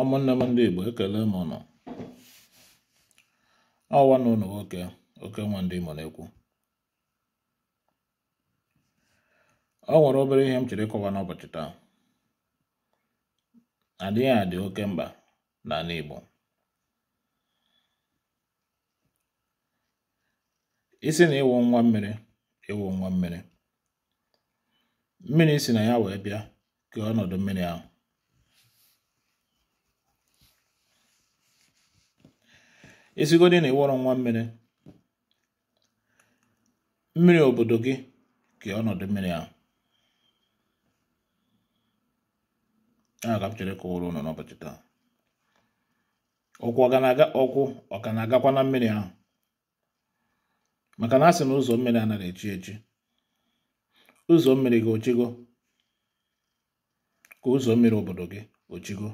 ụmụnne m ndị igbo ekele m ụnụ ọwa na ụnụ nwoke oke nwa ndị Imo na-ekwu ọ nwere obere ihe m chere ịkọwa n'ụbọchị taa adịghị adị oke mkpa n'ala igbo isi na ịwụ nwa mmiri ịwụ nwa mmiri mmiri si na ya wee bịa kee ọnọdụ mmiri ahụ esigodi na ịwọrọ nwa mmiri mmiri obodo gị ka ọnọdụ mmiri ahụ a ka m chere kụwara ụlọ n'ụbọchị taa ọkwụ ọ ka na-agakwa na mmiri ahụ maka na a si na ụzọ mmiri anaghị echi echi ụzọ mmiri gị ochigo ka ụzọ mmiri obodo gị ochigo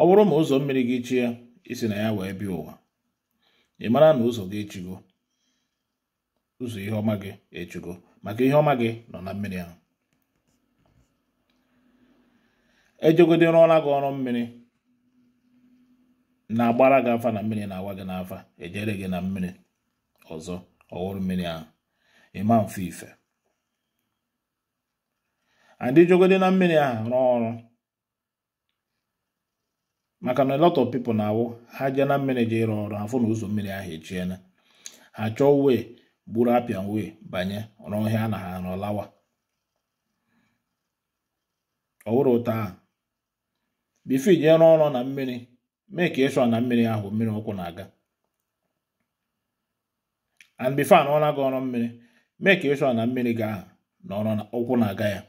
ọ bụrụ ma ụzọ mmiri gị chie isi na ya wee bịa ụwa ị mara na ụzọ gị echigo ụzọ ihe ọma gị echigo maka ihe ọma gị nọ na mmiri ahụ ejegodi rụọla gị ọrụ mmiri na-agbara gị afa na mmiri na-awa gị n'afa ejere gị na mmiri ọzọ ọhụrụ mmiri ahụ ịma mfe ife adịjogodi na mmiri ahụ rụọ ọrụ maka na lot of people na-awụ ha jee na mmiri jee ịrụ ọrụ afụ na ụzọ mmiri ahụ echiela ha chọọ wee gburu apịa wee banye ọhịa na ha nọlawa ọwụrụ ụta ahụ bifo ije rụọ ọrụ na mmiri mee ka ịshọ na mmiri ahụ mmiri ụkwụ na-aga and bifo anọọla gị ọrụ mmiri mee ka ịshọ na mmiri ga ọrụ ụkwụ na-aga ya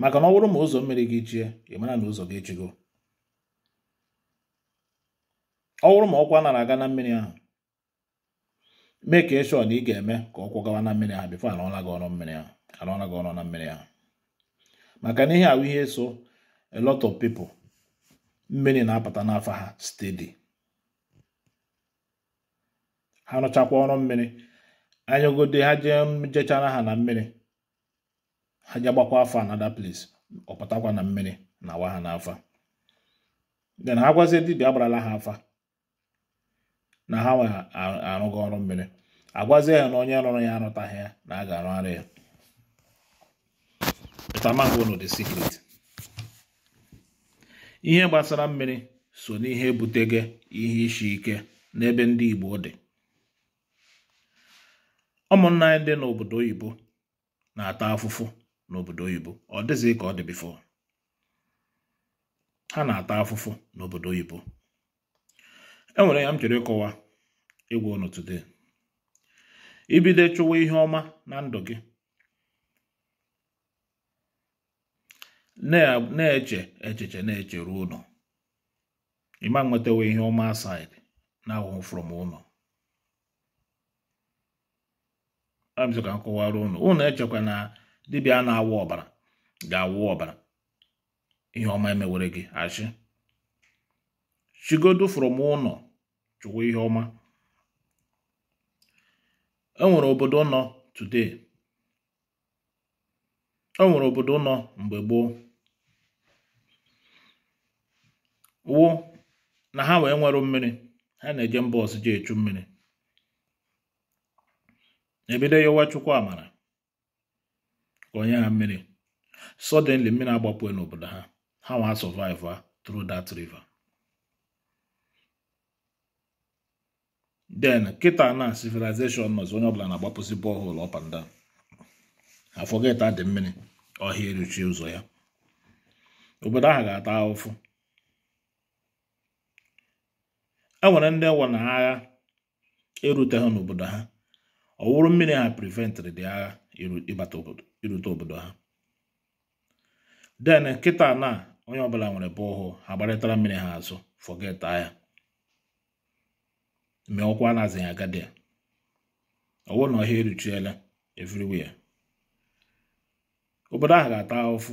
maka na ọ bụrụ ma ụzọ mmiri gị jie ị mara na ụzọ gị ejigo ọ bụrụ ma ọkwa nara aga na mmiri ahụ mee ka ịshọ na ị ga-eme ka ọkwụ gawa na mmiri ahụ bifo arụọla gị ọrụ mmiri ahụ arụọla gị ọrụ na mmiri ahụ maka na ihe ahụ ihe so a lot of people mmiri na-apụta n'afọ ha steady ha rụchakwa ọrụ mmiri anyagode ha jee jechara ha na mmiri ha ji afọ another place ọ pụtakwa na mmiri na awa ha n'afa then ha gwazie dibia agbarala ha afa na ha nwe arụghị ọrụ mmiri agwazie ya na onye rụrụ ya arụtaghị ya na a ga arụ arụ ya the secret ihe gbasara mmiri so n'ihe ebutego ihe isi ike n'ebe ndị Igbo dị ụmụnna anyị dị n'obodo oyibo na-ata afụfụ n'obodo oyibo ọ dịzị ka ọ dị bifo ha na-ata afụfụ n'obodo oyibo enwere ya m chere ịkọwa ịgwa ụnụ today ibido chụwa ihe ọma na ndụ gị na-eche echiche na-eche ruo ụlọ ịma nwetawa ihe ọma asaịdị na-awụ from ụlọ ka m kọwara ụnụ ụnụ echekwa na dibịa na-awa ọbara ga-awụ ọbara ihe ọma emewere gị achị chigodo fụrụ m ụnọ chụwa ihe ọma enwere obodo nọ today e obodo nọ mgbe gboo wụ na ha wee nwere mmiri ha na-eje mba ọzọ ji echu mmiri ebido yowa chukwu amara onye ha mmiri suddenly mmiri agbapụghị n'obodo ha ha wa survive a ah, through that river kịta na civilization nọzi onye ọbụla na-agbapụzi borehole up afọgeta dị mmiri ọhịa eruchie ụzọ ya obodo ahụ ga-ata ahụfụ e nwere ndị nwụ na agha eruteghị n'obodo ha ọ wụrụ mmiri ha prevent dị agha ịbata obodo irute obodo ha den kịta na onye ọbụla nwere bọọhụ ha gbarịtara mmiri ha azụ fọgeta ya mee ọkwa na-azịghị agadi ya ọwụ na ọhịa eruchiela everywhere obodo ahụ ga-ata ụfụ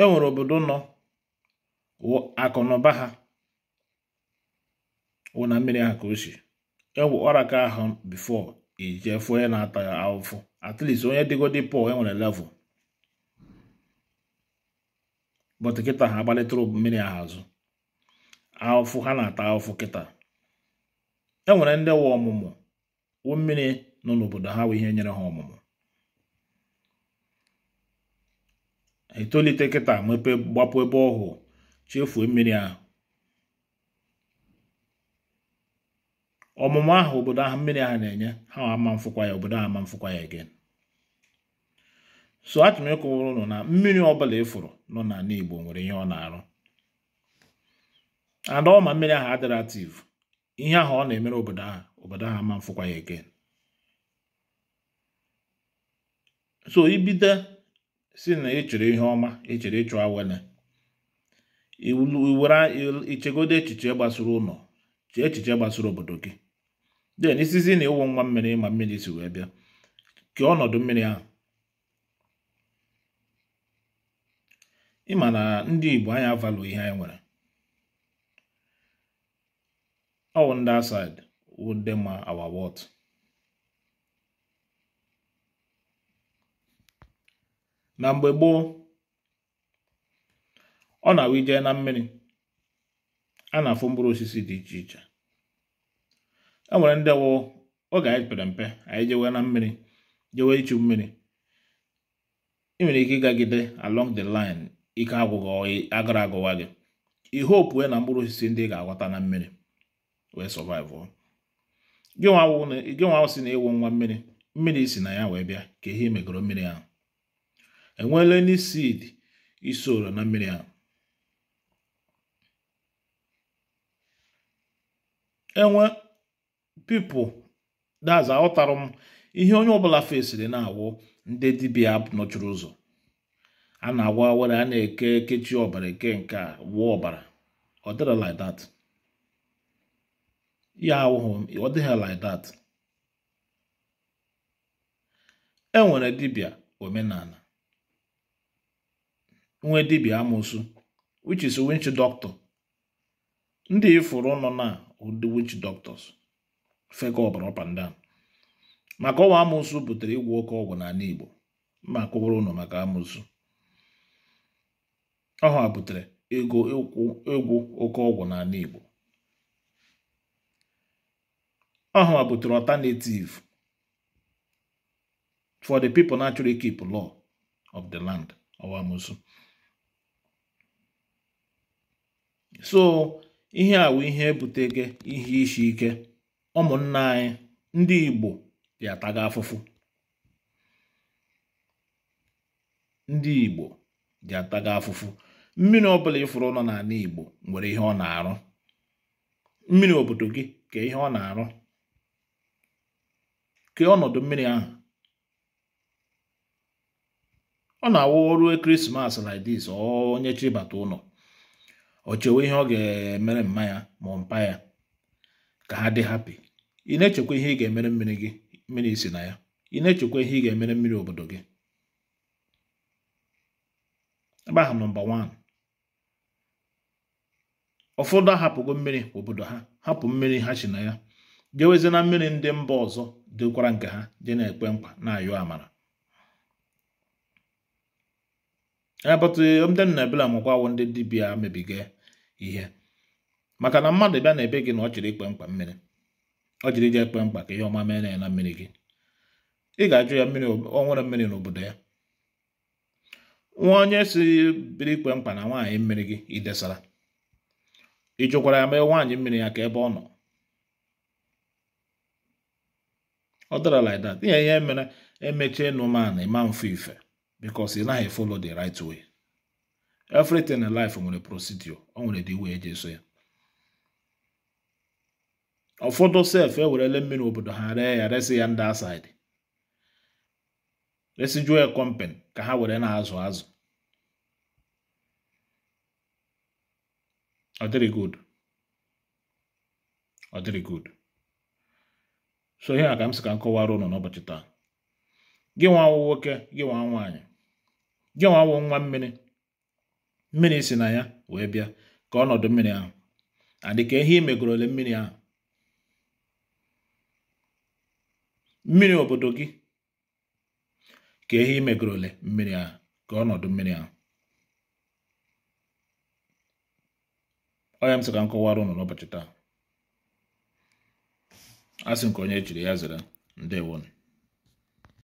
e nwere obodo nọ akụ ha wụ na mmiri ha ka o si egwu ọra ka ahụ bifọ ijefu onye na-ata ya ahụfụ at onye dịgodi pọl e nwere bọt kịta ha agbalịtụrụ mmiri ahụ azụ ahụfụ ha na-ata ahụfụ kịta e nwere ndị nwa ọmụmụ wụ mmiri nọ n'obodo ha wụ ihe nyere ha ọmụmụ etolite kịta mepe gbapụ ebe ọhụụ chefuo mmiri ahụ ọmụmụ ahụ obodo ahụ mmiri ahụ na-enye ha ama mfụkwa ya obodo ahụ ama mfụkwa ya again so achọrọ m na mmiri ọbụla ịfụrụ e nọ n'ala Igbo nwere ihe ọ na-arụ ada ọma mmiri ahụ adịrị ihe ahụ ọ na-emere obodo ahụ obodo ahụ ama mfụkwa ya again so ibido si na ịchọrọ ihe ọma ịchọrọ ịchụ awele iwere ichegodo echiche gbasara ụlọ echiche gbasara obodo gị den isizi na ịwụ nwa mmiri ma mmiri si wee bịa kee ọnọdụ mmiri ahụ ịma na ndị Igbo anya avalụ ihe anyị nwere ọwụ ndị asid wụ ndị ma awa wọt na mgbe gboo ọ na-awụ ije na mmiri a na-afụ mkpụrụ osisi dị iche iche e nwere ndị wụ oge anyị pere mpe anyị jewe na mmiri jewe ichu mmiri ị nwere ike ịgagide along the line ike agwụghị agara agụwa gị ihe opue na mkpụrụ osisi ndị ga-aghọta na mmiri wee survive gị awụ si na ịwụ nwa mmiri mmiri si na ya wee bịa ka ihe megoro mmiri ahụ enweela ndị seed isoro na mmiri ahụ pipo daza aghọtara m ihe onye ọbụla fesiri na-awụ ndị dibịa nọchiri ụzọ a na-agwa were a na-eke kechi ọbara eke nke a wụọ ọbara ọ dịghị like that ya awụghị ọ dịghị like e nwere dibịa omenala nwee dibịa amụsụ which is which doctor ndị ifuru nọ na ụdị witch doctors fego ọbara ọpanda maka ọnwa amụsụ butere ịgwụ oke ọgwụ n'ala Igbo mma kụwara ụnọ maka amụsụ ọha butere ego egwu oke ọgwụ n'ala Igbo ọha butere alternative for the people naturally keep law of the land ọwa amụsụ so ihe a bụ ihe ebutego ihe isi ike ụmụnna anyị ndị Igbo dị taga afụfụ ndị Igbo dị ataga afụfụ mmiri ọbụla ịfụrụ nọ n'ala Igbo nwere ihe ọ na-arụ mmiri obodo gị ka ihe ọ na-arụ ka ọnọdụ mmiri ahụ ọ na-awụ ọrụ ekeresimesi like this onye chibata ụlọ o chewe ihe ọ ga-emere mma ya ma mpa ya ka ha dị hapi ị na-echekwa ihe ị ga-emere mmiri gị mmiri isi na ya ị na-echekwa ihe ị ga-emere mmiri obodo gị ebe ahụ nọmba 1 ụfọdụ ahapụgo mmiri obodo ha hapụ mmiri ha si na ya jewezi na mmiri ndị mba ọzọ dịkwara nke ha dị na-ekwe mkpa na ayụ amara abata um, ndị nna ebela mụkwa awụ ndị dibịa mebiga ihe maka na mmadụ bịa na ebe gị na ọ jiri ikpe mkpa mmiri ọ jiri ije ekpe mkpa ka ihe ọma mee na ya na mmiri gị ị ga-ajụ ya mmiri ọ nwere mmiri n'obodo ya nwa onye si biri ikpe mkpa na nwaanyị mmiri gị idesara ị jụkwara ya mee nwaanyị mmiri ya ka ebe ọ nọ ọ dara like that ihe ihe mere emechie nụman ịma mfe ife bikos ị naghị follow the right way everything in life nwere procedure o nwere dị way eji eso ya ụfọdụ sef ewerele mmiri obodo ha ree ya resi ya ndị asaịdị resijuo ya kọmpen ka ha were na-azụ azụ ọ dịrị good ọ dịrị good so ihe a ka m sị ka m ụnụ n'ụbọchị taa gị nwa awụ nwoke gị nwa nwaanyị gị nwa awụ nwa mmiri mmiri si na ya wee bịa ka ọnọdụ mmiri ahụ adị ka ihe imegorole mmiri ahụ mmiri obodo gị ka ehi imegoro ole mmiri a ka ọnọdụ mmiri ahụ onye m sị ka m ụnụ n'ụbọchị taa asị nke onye jiri ya zere ndewonu